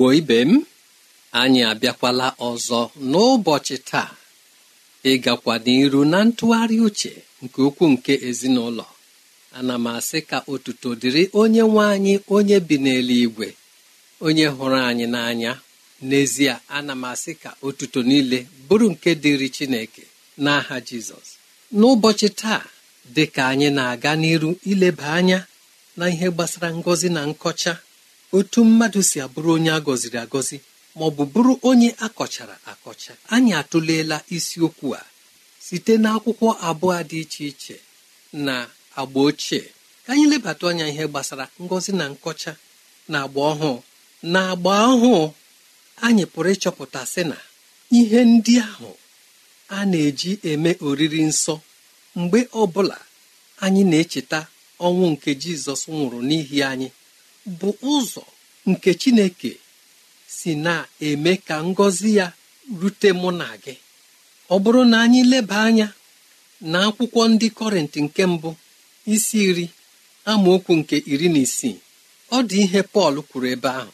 igbo ibe m anyị abịakwala ọzọ n'ụbọchị taa ịgakwa n'iru na ntụgharị uche nke ukwu nke ezinụlọ ana m asị ka otuto dịrị onye nwe anyị onye bi n'eluigwe onye hụrụ anyị n'anya n'ezie ana m asị ka otuto niile bụrụ nke dịrị chineke n'aha jizọs n'ụbọchị taa dị ka anyị na-aga n'iru ileba anya na ihe gbasara ngọzi na nkọcha otu mmadụ si abụrụ onye a gọziri agọzi ma ọ bụ bụrụ onye a kọchara akọcha anyị atụleela isiokwu a site n'akwụkwọ abụọ dị iche iche na agba ochie ka anyị lebata anya ihe gbasara ngọzi na nkọcha na agba ọhụụ na agba ọhụụ anyị pụrụ ịchọpụta sị na ihe ndị ahụ a na-eji eme oriri nsọ mgbe ọ bụla anyị na-echeta ọnwụ nke jizọs nwụrụ n'ihi anyị bụ ụzọ nke chineke si na-eme ka ngọzi ya rute mụ na gị ọ bụrụ na anyị leba anya na akwụkwọ ndị kọrịntị nke mbụ isi iri amaokwu nke iri na isii ọ dị ihe Pọl kwuru ebe ahụ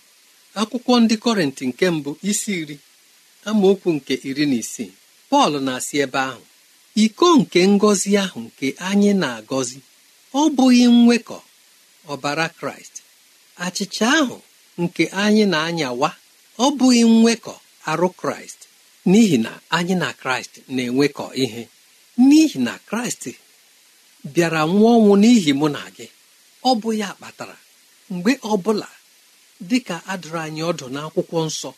akwụkwọ ndị kọrịntị nke mbụ isi iri amaokwu nke iri na isii Pọl na-asị ebe ahụ iko nke ngọzi ahụ nke anyị na-agọzi ọ bụghị nwekọ ọbara Kraịst achịcha ahụ nke anyị na-anyawa ọ bụghị nwekọ arụ kraịst n'ihi na anyị na kraịst na-enwekọ ihe n'ihi na kraịst bịara nwụọ ọnwụ n'ihi mụ na gị ọ bụ ya kpatara mgbe ọbụla dị ka adụrụ anyị ọdụ n'akwụkwọ nsọ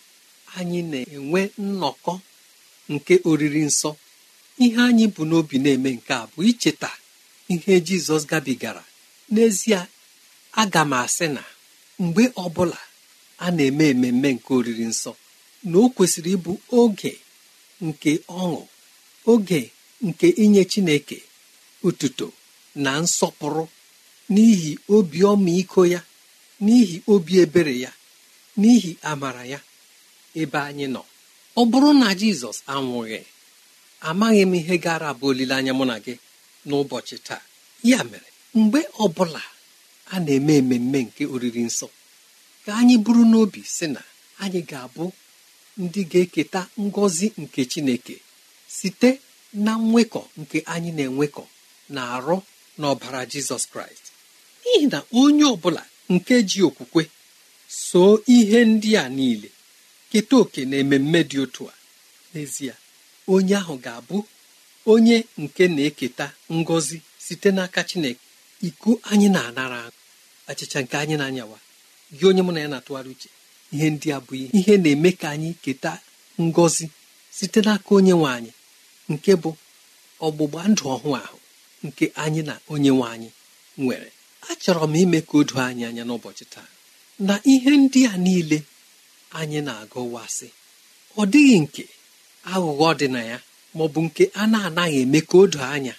anyị na-enwe nnọkọ nke oriri nsọ ihe anyị bụ n'obi na-eme nke a bụ icheta ihe jizọs gabigara n'ezie aga m asị na mgbe ọbụla a na-eme ememe nke oriri nsọ na o kwesịrị ịbụ oge nke ọṅụ oge nke inye Chineke ụtụtụ na nsọpụrụ n'ihi obi ọmịiko ya n'ihi obi ebere ya n'ihi amara ya ebe anyị nọ ọ bụrụ na Jizọs anwụghị amaghị m ihe gara abụ olileanya mụ na gị n'ụbọchị taa ya mere mgbe ọbụla a na-eme ememme nke oriri nsọ ka anyị bụrụ n'obi sị na anyị ga-abụ ndị ga-eketa ngọzi nke chineke site na nwekọ nke anyị na-enwekọ na arụ n'ọbara ọbara jizọs kraịst n'ihi na onye ọbụla nke ji okwukwe soo ihe ndị a niile keta oke na ememme dị otu a n'ezie onye ahụ ga-abụ onye nke na-eketa ngọzi site n'aka chineke iko anyị na-anara achịcha nke anyị na-anyawa gị onye mụ na ya na-atụgharị uche ihe ndị a bụ ihe na-eme ka anyị keta ngọzi site n'aka onye nwe anyị nke bụ ọgbụgba ndụ ọhụụ ahụ nke anyị na onye nwe anyị nwere achọrọ m ime ka o doo anyị anya n'ụbọchị taa na ihe ndị a niile anyị na-agọwasị ọ dịghị nke aghụghọ dị na ya ma ọ bụ nke a na-anaghị eme ka o doo anya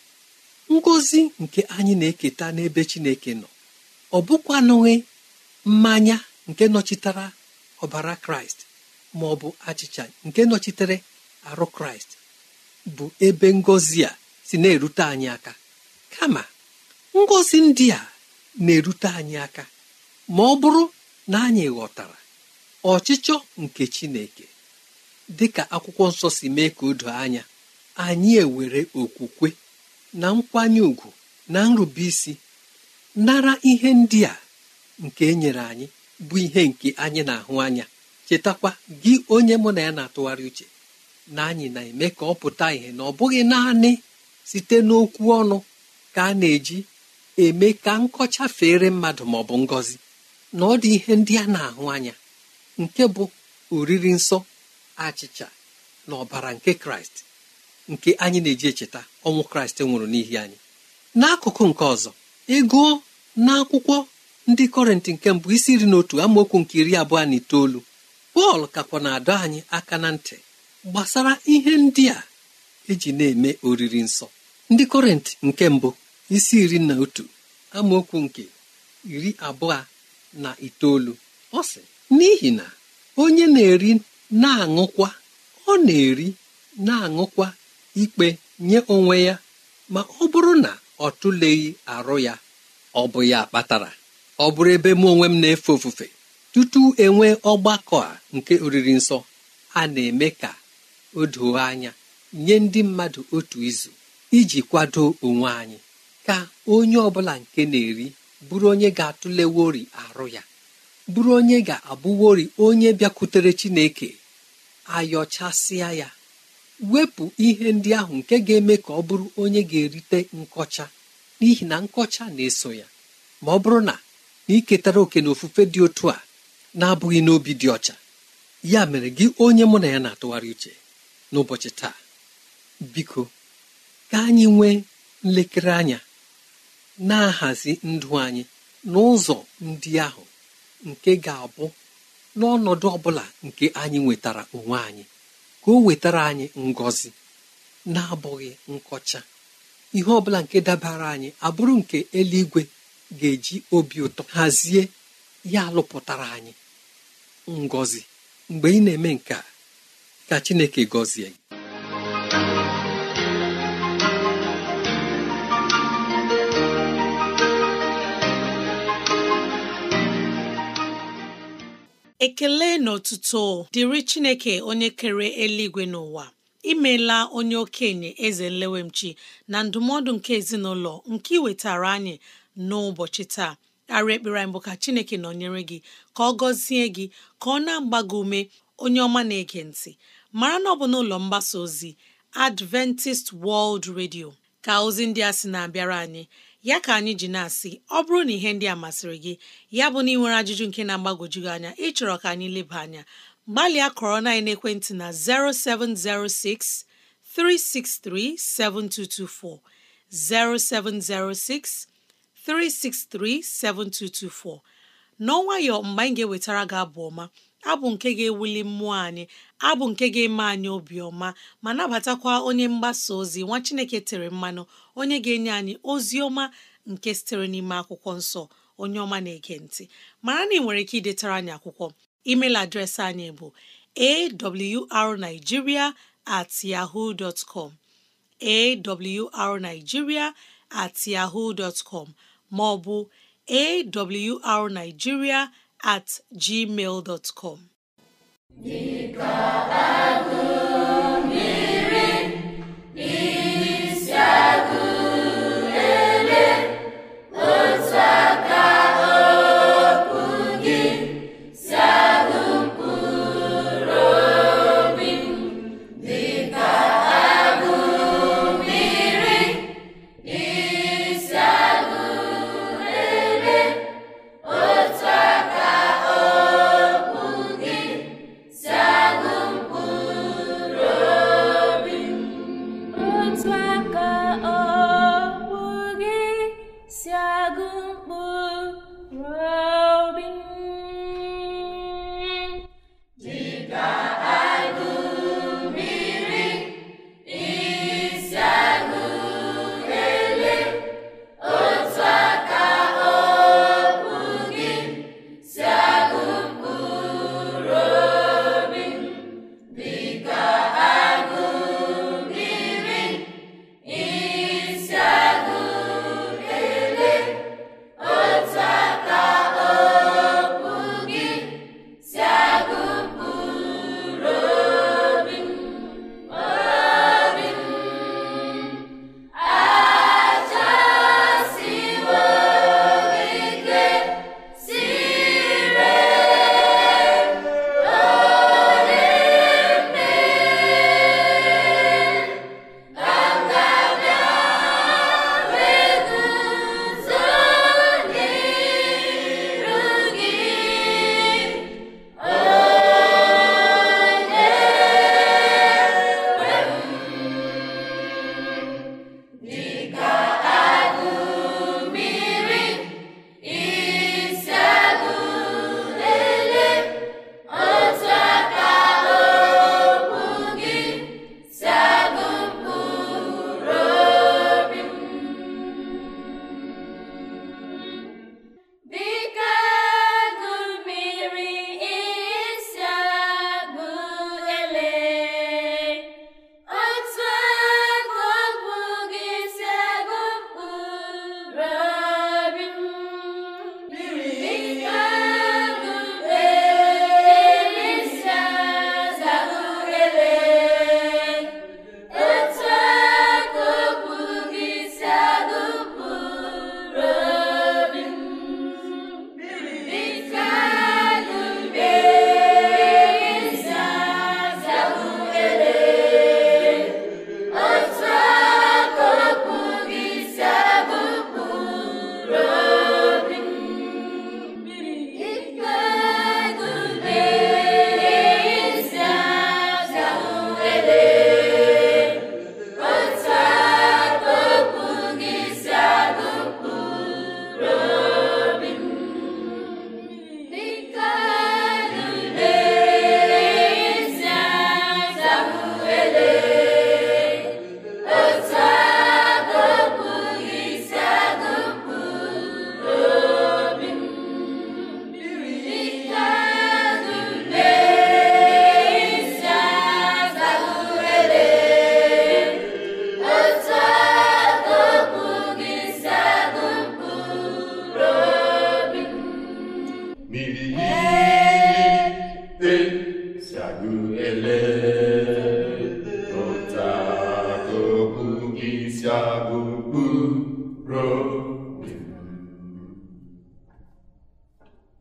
ngọzi nke anyị na-eketa n'ebe Chineke nọ ọ bụkwanụghị mmanya nke nọchitere ọbara kraịst ma bụ achịcha nke nọchitere arụ kraịst bụ ebe ngọzi a si na-erute anyị aka kama ngọzi ndị a na-erute anyị aka ma ọ bụrụ na anyị ghọtara ọchịchọ nke chineke dịka akwụkwọ nsọ si mee ka odo anya anyị ewere okwukwe na nkwanye ùgwù na nrubeisi nara ihe ndị a nke e nyere anyị bụ ihe nke anyị na-ahụ anya chetakwa gị onye mụ na ya na-atụgharị uche na anyị na-eme ka ọ pụta ihe na ọ bụghị naanị site n'okwu ọnụ ka a na-eji eme ka nkọcha fere mmadụ ma ọ bụ ngọzi na ọ dị ihe ndị a na-ahụ anya nke bụ oriri nsọ achịcha na ọbara nke kraịst nke anyị na-eji echeta ọnwụ kraịst nwụrụ n'ihi anyị n'akụkụ nke ọzọ ego n'akwụkwọ ndị kọrịntị nke mbụ isi iri na otu amaokwu nke iri abụọ na itoolu pọl kakwa na-adọ anyị aka na ntị gbasara ihe ndị a eji na-eme oriri nsọ ndị kọrịntị nke mbụ isi iri na otu amaokwu nke iri abụọ na itoolu ọ sị n'ihi na onye na-eri na-aṅụkwa ọ na-eri na-aṅụkwa ikpe nye onwe ya ma ọ bụrụ na ọ tụleghị arụ ya ọ bụ ya kpatara ọ bụrụ ebe mụ onwe m na-efe ofufe tutu enwee ọgbakọ a nke oriri nsọ a na-eme ka o doo anya nye ndị mmadụ otu izu iji kwado onwe anyị ka onye ọbụla nke na-eri bụrụ onye ga-atụlewori arụ ya bụrụ onye ga-abụwori onye bịakwutere Chineke ayọchasịa ya wepụ ihe ndị ahụ nke ga-eme ka ọ bụrụ onye ga-erite nkọcha n'ihi na nkọcha na-eso ya ma ọ bụrụ na naiketara iketara oke na ofufe dị otu a na-abụghị n'obi dị ọcha ya mere gị onye mụ na ya na-atụgharị uche n'ụbọchị taa biko ka anyị nwee nlekere anya na-ahazi ndụ anyị n'ụzọ ndị ahụ nke ga-abụ n'ọnọdụ ọ bụla nke anyị nwetara onwe anyị ka o wetara anyị ngọzi na-abụghị nkọcha ihe ọ bụla nke dabara anyị abụrụ nke eluigwe ga-eji obi ụtọ hazie ya alụpụtara anyị ngọzi mgbe ị na-eme nke a ka Chineke gọzie gị ekele na dịrị Chineke onye kere eluigwe n'ụwa imela onye okenye eze nlewemchi na ndụmọdụ nke ezinụlọ nke iwetara anyị n'ụbọchị taa arịa ekpere anyị bụ ka chineke nọnyere gị ka ọ gọzie gị ka ọ na-agba gị ume onye ọma na-ege ntị mara na ọ bụ n'ụlọ mgbasa ozi Adventist World Radio ka ozi ndị a sị na-abịara anyị ya ka anyị ji na-asị ọ bụrụ na ihe ndị a masịrị gị ya bụ na ị ajụjụ nke na-agbagwoju anya ịchọrọ ka anyị leba anya gbalịa kọrọ na ekwentị na 0706 363 7224 0706 363 7224 n'ọnwayọ mgbe anyị ga-ewetara gị abụ ọma abụ nke ga-ewuli mmụọ anyị abụ nke ga-eme anyị obiọma ma nabatakwa onye mgbasa ozi nwa Chineke tere mmanụ onye ga-enye anyị ozi ọma nke sitere n'ime akwụkwọ nsọ onye ọma na-ege ntị mara na ị nwere ike idetara anyị akwụkwọ email adreesị anyị bụ awrnigeria at yahoo dot com awrnigeria at yahoo com maọbụ awrnigeria at gmail dot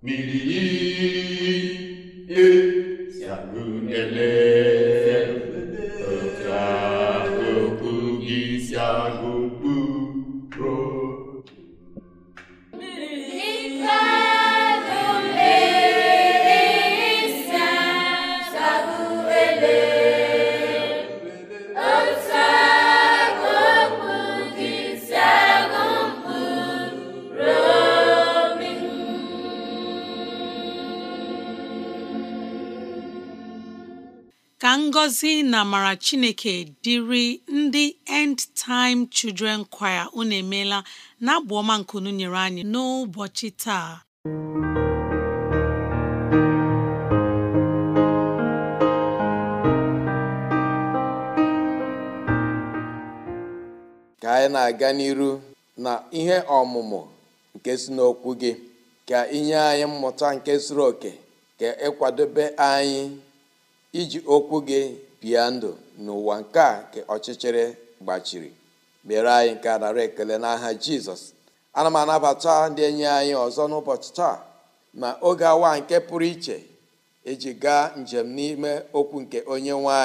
Miri e ye, a ye, na amara chineke dịrị ndị End Time Children Choir unu emeela na abụ ọma nke nyere anyị n'ụbọchị taa ka anyị na-aga n'iru na ihe ọmụmụ nke si n'okwu gị ka inye anyị mmụta nke zuru oke ka ịkwadobe anyị iji okwu gị bia ndụ n'ụwa nke a nke ọchịchịrị gbachiri mere anyị nke a nara ekele n'aha jizọs ana m anabata ndị enyi anyị ọzọ n'ụbọchị taa ma oge awa nke pụrụ iche eji gaa njem n'ime okwu nke onye nwe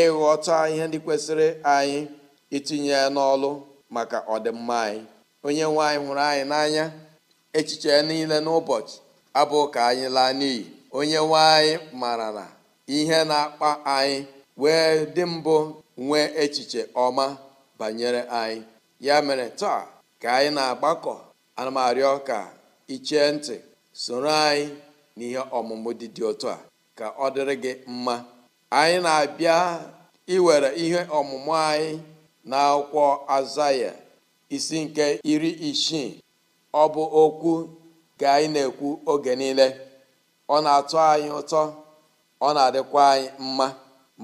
ịghọta ihe ndị kwesịrị anyị itinye n'ọlụ maka ọdịmma anyị onye nwanyị hụrụ anyị n'anya echiche niile n'ụbọchị abụ ka anyị laa n'iyi onye nwe anyị mara na ihe na-akpa anyị wee dị mbụ nwee echiche ọma banyere anyị ya mere taa ka anyị na-agbakọ ana ọka arịọ ka ntị soro anyị n'ihe ọmụmụ dị dị otu a ka ọ dịrị gị mma anyị na-abịa iwere ihe ọmụmụ anyị na akwụkwọ azaya isi nke iri isii ọ bụ okwu ka anyị na-ekwu oge niile ọ na-atọ anyị ụtọ ọ na-adịkwa anyị mma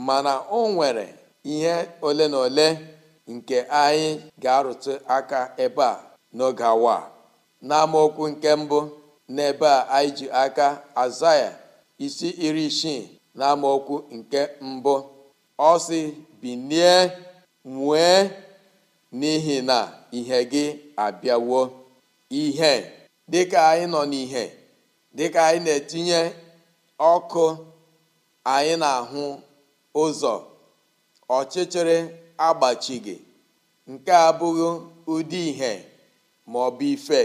mana o nwere ihe ole na ole nke anyị ga-arụtụ aka ebe a n'oge awa n'amaokwu nke mbụ n'ebe a anyị ji aka aza ya isi iri isii n'amaokwu nke mbụ ọ si binie nwee n'ihi na ihe gị abịawo ihe dịka anyị nọ n'ihe dịka anyị na-etinye ọkụ anyị na-ahụ ụzọ ọchịchịrị agbachighị nke a abụghị ụdị ihe ma ọ bụ ife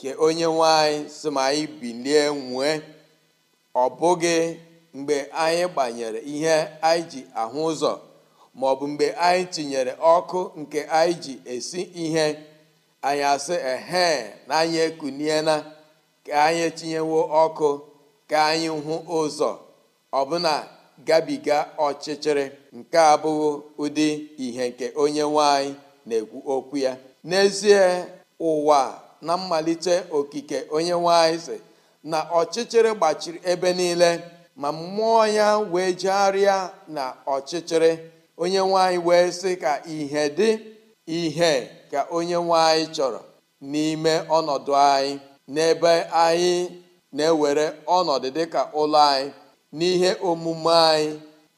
ka onye nwe anyị si ma anyị bilie nwee ọ bụghị mgbe anyị gbanyere ihe anyị ji ahụ ụzọ ma ọ bụ mgbe anyị tinyere ọkụ nke anyị ji esi ihe anyị asị ehe na anyị ekuniela ka anyị tinyewo ọkụ ka anyị hụ ụzọ ọbụna gabiga ọchịchịrị nke abụghị ụdị ihe nke onye nwanyị na-ekwu okwu ya n'ezie ụwa na mmalite okike onye nwanyị si na ọchịchịrị gbachiri ebe niile ma mmụọ ya wee jegharịa na ọchịchịrị onye nwanyị wee sị ka ihe dị ihe ka onye nwanyị chọrọ n'ime ọnọdụ anyị n'ebe anyị na-ewere ọnọdụ dịka ụlọ anyị n'ihe omume anyị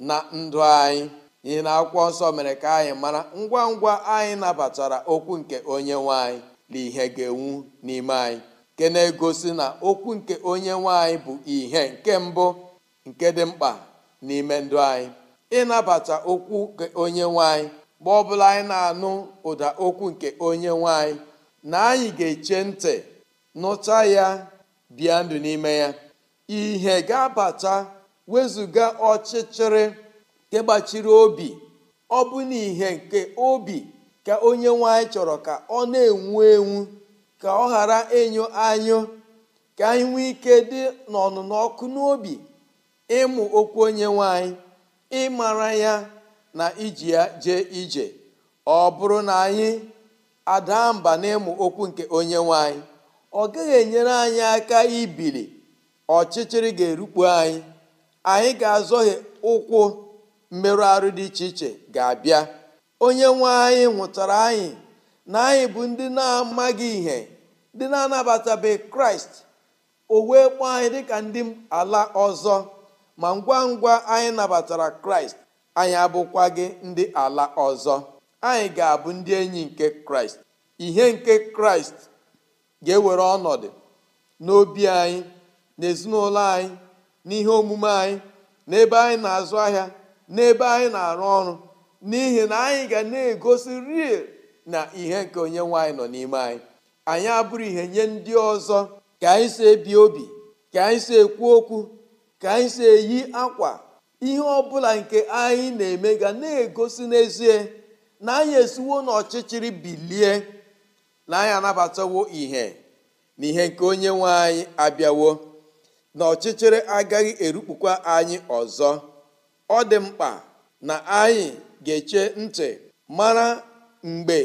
na ndụ anyị n'ihi na akwụkwọ nsọ mere ka anyị mara ngwa ngwa anyị nabatara okwu nke onye nwanyị na ihe ga-enwu n'ime anyị nke na-egosi na okwu nke onye nwanyị bụ ihe nke mbụ nke dị mkpa n'ime ndụ anyị ịnabata okwu nke onye nwanyị ọ ọbụla anyị na-anụ ụda okwu nke onye nwanyị na anyị ga-eche ntị nụta ya bịa ndụ n'ime ya ihe ga-abata wezụga ọchịchịrị nke gbachiri obi ọ bụ n'ihe nke obi ka onye nwanyị chọrọ ka ọ na-enwu enwu ka ọ ghara enyo anyụ ka anyị nwee ike dị n'ọnụnọ ọkụ n'obi ịmụ okwu onye nwanyị ịmara ya na iji ya jee ije ọ bụrụ na anyị ada mba n'ịmụ okwu nke onye nwanyị ọ gaghị enyere anyị aka ibili ọchịchịrị ga-erukpu anyị anyị ga-azọghị ụkwụ mmerụ arụ dị iche iche ga-abịa onye nwe anyị nwụtara anyị na anyị bụ ndị na-amaghị ihe ndị na-anabatabeghị kraịst o wee kpọọ anyị dịka ndị ala ọzọ ma ngwa ngwa anyị nabatara kraịst anyị abụkwa gị ndị ala ọzọ anyị ga-abụ ndị enyi nke kraịst ihe nke kraịst ga-ewere ọnọdụ n'obi anyị n'ezinụlọ anyị n'ihe omume anyị n'ebe anyị na-azụ ahịa n'ebe anyị na-arụ ọrụ n'ihi na anyị ga na-egosi rie na ihe nke onye nwaanyị nọ n'ime anyị anyị abụrụ ihe nye ndị ọzọ ka anyị si ebi obi ka anyị si ekwu okwu ka anyị si eyi akwa ihe ọbụla nke anyị na-eme ga na-egosi n'ezie na anyị esiwo n'ọchịchịrị bilie na anyị anabatawo ihe na ihe nke onye nwe anyị abịawo na ọchịchịrị agaghị erukpukwa anyị ọzọ ọ dị mkpa na anyị ga-eche ntị mara mgbe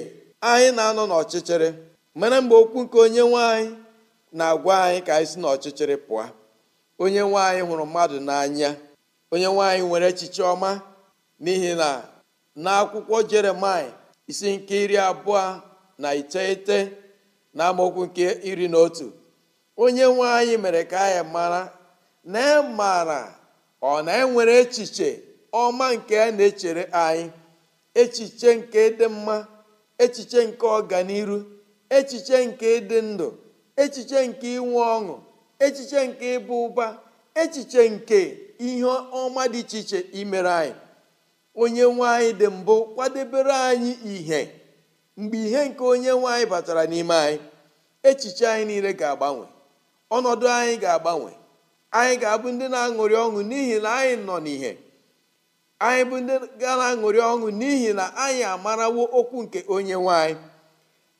anyị na-anọ n'ọchịchịrị mara mgbe okwu nke onye nwanyị na-agwa anyị ka anyị si n'ọchịchịrị pụọ onye nwanyị hụrụ mmadụ n'anya onye nwanyị nwere echiche ọma n'ihi na n'akwụkwọ jeremai isi nke iri abụọ na iteghete na amaokwu nke iri na otu onye nwe anyị mere ka anyị mara na e mara ọ na-enwere echiche ọma nke a na-echere anyị echiche nke dị mma echiche nke ọganiru echiche nke ịdị ndụ echiche nke inwe ọṅụ echiche nke ịbụ ụba echiche nke ihe ọma dị iche iche imere anyị onye nwe anyị dị mbụ kwadebere anyị ihe mgbe ihe nke onye nwe anyị batara n'ime anyị echiche anyị niile ga-agbanwe ọnọdụ anyị ga-agbanwe anyị ga-abụ ndị na-aṅụrị ọṅụ n'ihi na anyị nọ n'ihe anyị bụ ndị ga na-aṅụrị ọṅụ n'ihi na anyị amarawo okwu nke onye nwanyị. anyị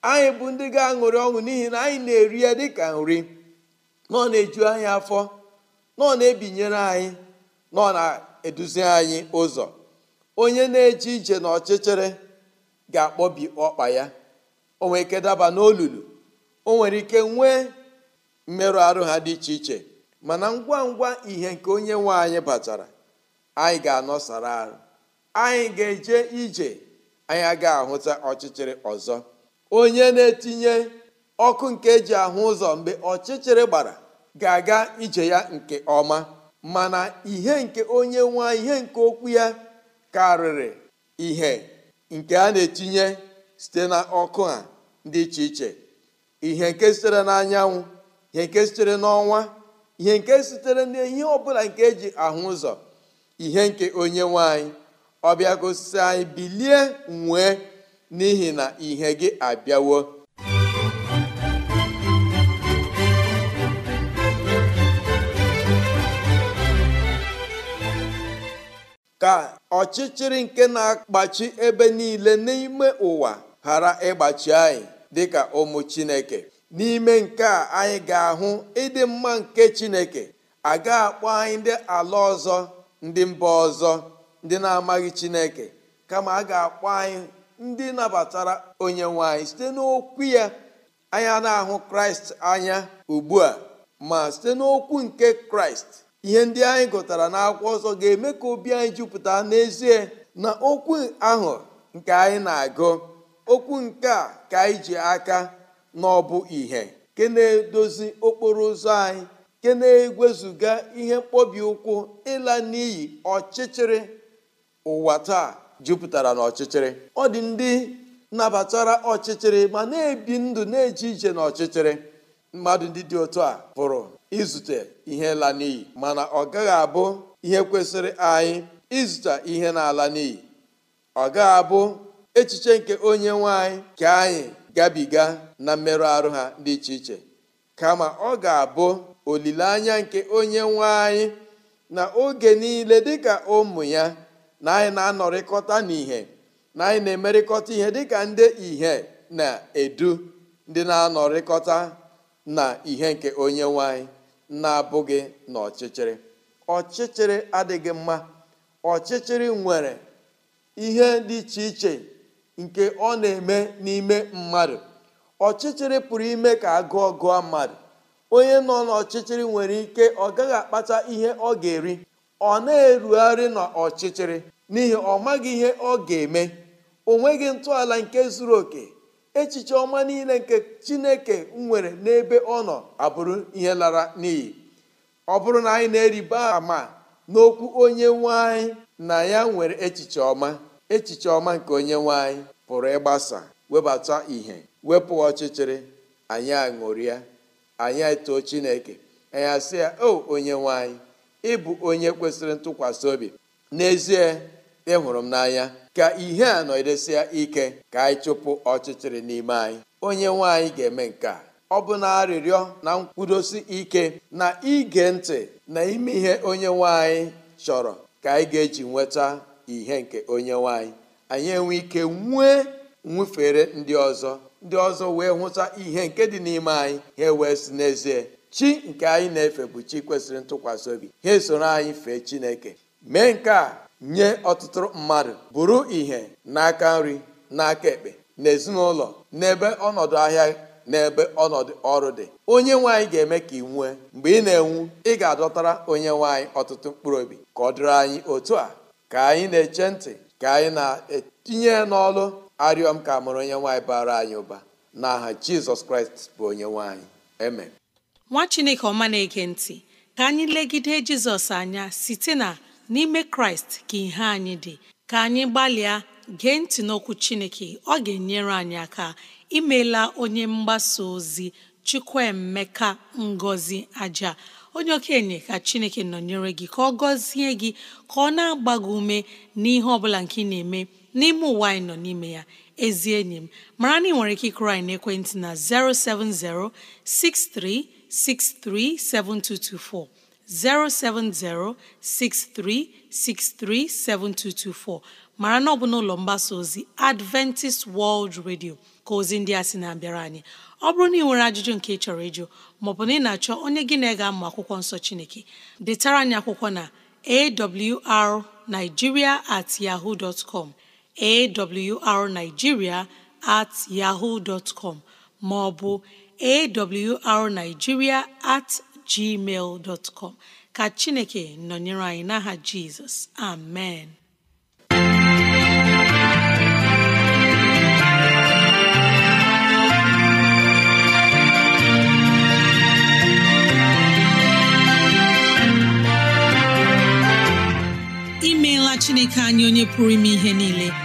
anyị bụ ndị ga-aṅụrị ọṅụ n'ihi na anyị na-eri ya dịka nri nọ na-eju anyị afọ nọ na-ebinyere anyị nọ na-eduzi anyị ụzọ onye na-eje ije n'ọchịchịrị ga-akpọbi ọkpa ya o nwere ike daba n'olulu o nwere ike nwee mmerụ arụ ha dị iche iche mana ngwa ngwa ihe nke onye nwe anyị batara anyị ga-anọsara arụ anyị ga-eje ije anyị ga ahụta ọchịchịrị ọzọ onye na-etinye ọkụ nke eji ahụ ụzọ mgbe ọchịchịrị gbara ga-aga ije ya nke ọma mana ihe nke onye nwe ihe nke okwu ya karịrị ihe nke a na-etinye site na ọkụ ha dị iche iche ihe nke sitere n'anyanwụ ihe nke sitere n'ọnwa ihe nke sitere n'ihe ọbụla nke eji ahụ ụzọ ihe nke onye nwanyị ọbịa gosi anyị bilie nwee n'ihi na ihe gị abịawo ka ọchịchịrị nke na-akpachi ebe niile n'ime ụwa ghara ịgbachi anyị dị ka ụmụ Chineke n'ime nke a anyị ga-ahụ ịdị mma nke chineke aga akpọ anyị ndị ala ọzọ ndị mba ọzọ ndị na-amaghị chineke kama a ga-akpọ anyị ndị nabatara onye nwanyị site n'okwu ya anya na-ahụ kraịst anya ugbu a ma site n'okwu nke kraịst ihe ndị anyị gụtara n'akwụkwọ ọzọ ga-eme ka obi anyị jupụta n'ezie na okwu ahụ nke anyị na-agụ okwu nke a ka anyị ji aka na ọ bụ ìhè nke na-edozi okporo ụzọ anyị nke na-egwezuga ihe mkpobi ụkwụ ịla n'iyi ọchịchịrị ụwa taa jupụtara n'ọchịchịrị ọ dị ndị nabatara ọchịchịrị ma na-ebi ndụ na-eje ije n'ọchịchịrị mmadụ ndị dị otu a pụrụ izute ihe la n'iyi mana ọ gaghị abụ ihe kwesịrị anyị izute ihe na-ala n'iyi ọ gaghị abụ echiche nke onye nwe ka anyị gabiga na mmerụ arụ ha dị iche iche kama ọ ga-abụ olileanya nke onye nwe anyị na oge niile dịka ụmụ ya na anyị na-anọrịkọta ihe na anyị na-emerịkọta ihe dịka ndị ihe na-edu ndị na-anọrịkọta na ihe nke onye nwanyị na-abụghị na ọchịchịrị ọchịchịrị adịghị mma ọchịchịrị nwere ihe dị iche iche nke ọ na-eme n'ime mmadụ ọchịchịrị pụrụ ime ka agụọ gụọ mmadụ onye nọ n'ọchịchịrị nwere ike ọ gaghị akpata ihe ọ ga-eri ọ na-erugharị n'ọchịchịrị n'ihi ọ maghị ihe ọ ga-eme o nweghị ntọala nke zuru oke echiche ọma niile nke chineke nwere n'ebe ọ nọ abụrụ ihe lara n'iyi ọ bụrụ na anyị na-eriba ama n'okwu onye nwanyị na ya nwere echiche ọma echiche ọma nke onye nwanyị pụrụ ịgbasa webata ìhè wepụ ọchịchịrị anyị aṅụrịa anyị etoo chineke anyị asị ya o onye nwanyị ịbụ onye kwesịrị ntụkwasị obi n'ezie ịhụrụ m n'anya ka ihe a nọdesịa ike ka anyị chụpụ ọchịchịrị n'ime anyị onye nwanyị ga-eme nke a ọ bụ na arịrịọ na nkwudosi ike na ige ntị na ime ihe onye nwanyị chọrọ ka anyị ga-eji nweta ihe nke onye nwanyị anyị anyị enwe ike nwee nwufere ndị ọzọ ndị ọzọ wee hụta ihe nke dị n'ime anyị ha wee si n'ezie chi nke anyị na-efe bụ chi kwesịrị ntụkwasị obi ha esoro anyị fee chineke mee nke a nye ọtụtụ mmadụ bụrụ ihe n'aka nri n'aka ekpe n'ezinụlọ n'ebe ọnọdụ ahịa n'ebe ọnọdụ ọrụ dị onye nwaanyị ga-eme ka ị nwee mgbe ị na-enwu ị ga-adọtara onye nwaanyị ọtụtụ mkpụrụ obi ka ọ dịrị anyị otu a ka anyị na-eche ntị ka anyị na-etinye n'ọlụ arịọ m ka amụrụ onye nwaanyị bara anyị ụba n'aha jizọs kraịst bụ onye nwaanyị eme. nwa chineke ọma na-ege ntị ka anyị legide jizọs anya site na n'ime kraịst ka ihe anyị dị ka anyị gbalịa gee ntị n'okwu chineke ọ ga-enyere anyị aka imeela onye mgbasa ozi chukwuemeka ngozi aja onye okenye ka chineke nọnyere gị ka ọ gọzie gị ka ọ na-agba gị ume n'ihe ọ bụla nke ị na-eme n'ime ụwa anyị nọ n'ime ya ezi enyi m mara na ị nwere ike ịkụrụ anyị n'ekwentị na 070 6363 mara na ọ bụ n'ụlọ mgbasa ozi Adventist World Radio ka ozi ndị a sị na-abịara anyị ọ bụrụ na ị nwere ajụjụ nke ị chọrọ ịjụ maọbụ na ị na-achọ onye gị na ga-amụ akwụkwọ nsọ Chineke detara anyị akwụkwọ na awrnigeria at yahoo dot com awrnigeria at yahoo dot com ma ọ awrnigeria at gmail dot com ka Chineke nọnyere anyị n'aha Jizọs amen imeela Chineke anyị onye pụrụ ime ihe niile